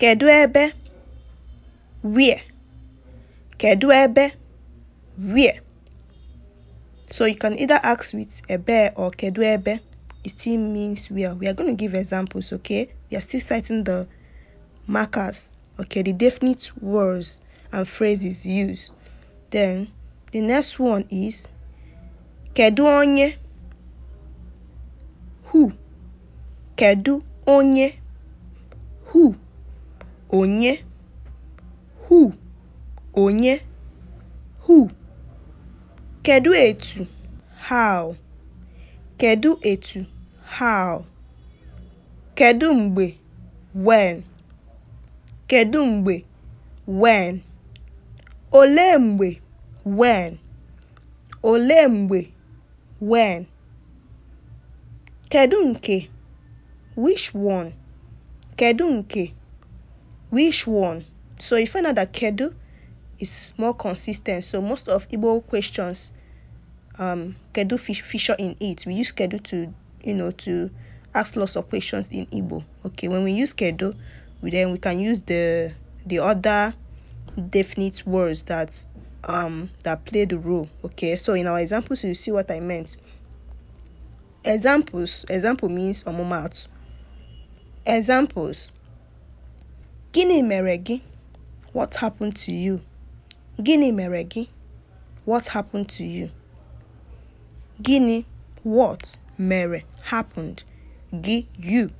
Kedu ebe? Where? Kedu ebe? Where? So you can either ask with ebe or kedu ebe. It still means where. We are going to give examples, okay? We are still citing the markers, okay? The definite words and phrases used. Then the next one is kedu onye? Who? Kedu onye? Who? onye hu onye "who", kedu etu "how", kedu etu "how", kedu mgbe "when", kedu mgbe "when", olee mgbe "when", olee mgbe "when", kedu nke (which one), kedu nke Which one? So you know that Kedu is more consistent. So most of Igbo questions, um, Kedu feature in it. We use Kedu to, you know, to ask lots of questions in Igbo. Okay, when we use Kedu, we then we can use the the other definite words that um that play the role. Okay, so in our examples, you see what I meant. Examples. Example means omomatu. Examples. Gịnị mere gị? What happened to you? Gịnị mere gị? What happened to you? Gịnị what mere happened gị you?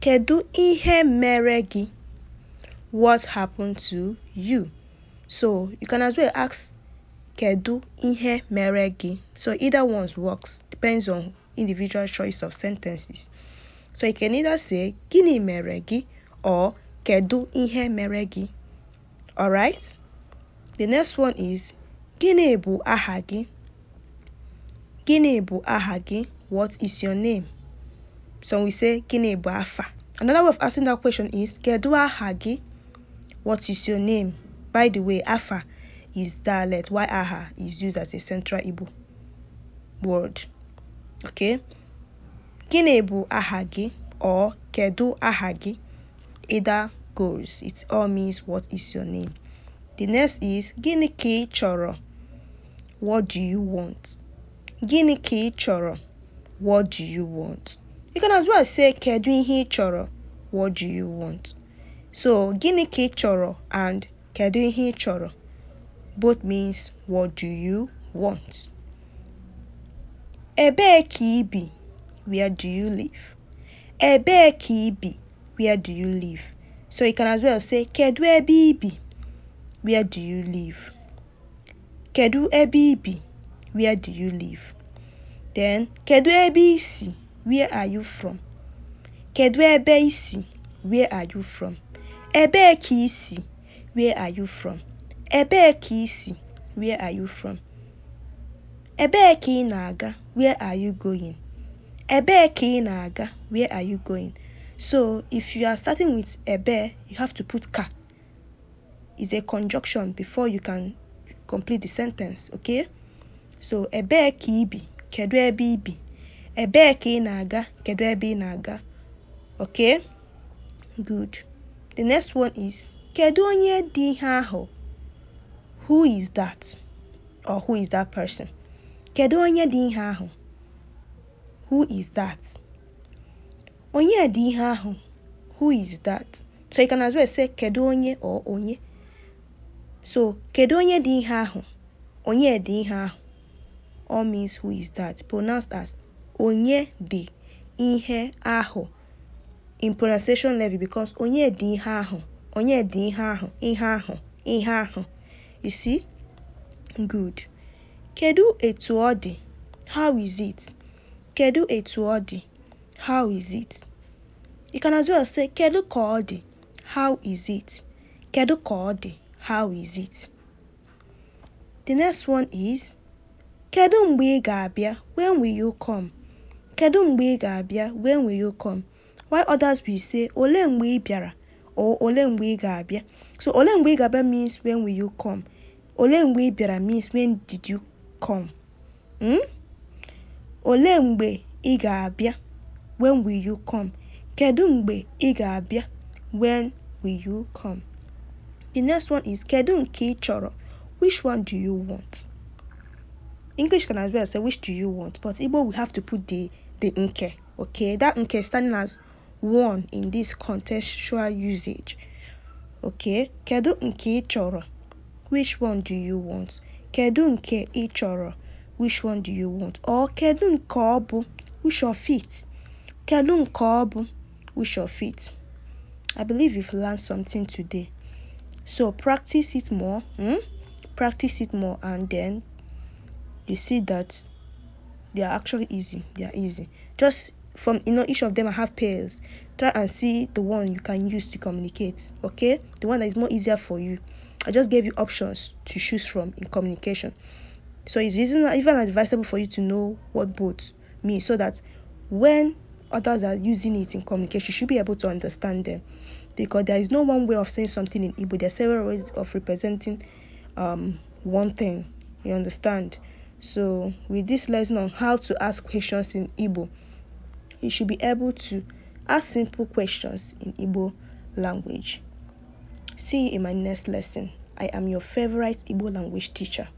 Kedu ihe mere gị? What happened to you? So you can as well ask kedu ihe mere gị. So either one's works depends on individual choice of sentences. So you can either say gịnị mere gị or kedu ihe mere gị? Alright? The next one is gịnị bụ aha gị? Gịnị bụ aha gị? What is your name? So we say gịnị bụ afa. Another way of asking that question is kedu aha gị? What is your name? By the way, afa is dialect Why aha is used as a central Igbo word. Okay? Gịnị bụ aha gị? Or kedu aha gị? Ada goes. It all means what is your name? The next is Gini choro. What do you want? Gini choro. What do you want? You can as well say kedu ihe choro. What do you want? So gini choro and kedu ihe choro both means what do you want? Ebee Kibi. Where do you live? Ebee Kibi where do you live? So you can as well say kedu ebe ibi? Where do you live? Kedu ebe ibi? Where do you live? Then kedu ebe isi? Where are you from? Kedu ebe isi? Where are you from? Ebee isi? Where are you from? Ebee isi? Where are you from? Ebee ka Where are you going? Ebee ka Where are you going? So if you are starting with a bear, you have to put ka. It's a conjunction before you can complete the sentence, okay? So a bear kibi, kedu ebe ibi? Ebe ka ị kedu ebi i Okay? Good. The next one is kedu onye dị ihe Who is that? Or who is that person? Kedu onye dị ihe Who is that? onye dị ihe ahụ who is that so you can as well say kedu onye or onye so kedu onye dị ihe ahụ onye dị ihe ahụ all means who is that pronounced as onye dị ihe ahụ in pronunciation level because onye dị ihe ahụ onye dị ihe ahụ ihe ahụ ihe ahụ you see good kedu etu ọ dị how is it kedu etu ọ dị How is it? You can as well say kedu ka How is it? Kedu ka How is it? The next one is kedu mgbe i When will you come? Kedu mgbe i When will you come? While others will say ole mgbe bịara or ole mgbe i So ole mgbe i means when will you come? Ole mgbe bịara means when did you come? Hmm? Ole mgbe i when will you come? Kedu mgbe ị ga-abịa? When will you come? The next one is Kedu nke ị chọrọ? Which one do you want? English can as well say which do you want, but Igbo we have to put the the nke. Okay, that nke standing as one in this contextual usage. Okay, kedu nke ị chọrọ? Which one do you want? Kedu nke ị chọrọ? Which one do you want? Or kedu nke ọ bụ? Which of it? Kedu nke ọ bụ which of it? I believe you've learned something today. So practice it more. Hmm? Practice it more and then you see that they are actually easy. They are easy. Just from you know each of them I have pairs. Try and see the one you can use to communicate. Okay? The one that is more easier for you. I just gave you options to choose from in communication. So it's even advisable for you to know what both mean so that when others are using it in communication, you should be able to understand them. Because there is no one way of saying something in Igbo, there are several ways of representing um, one thing. You understand? So, with this lesson on how to ask questions in Igbo, you should be able to ask simple questions in Igbo language. See you in my next lesson. I am your favorite Igbo language teacher.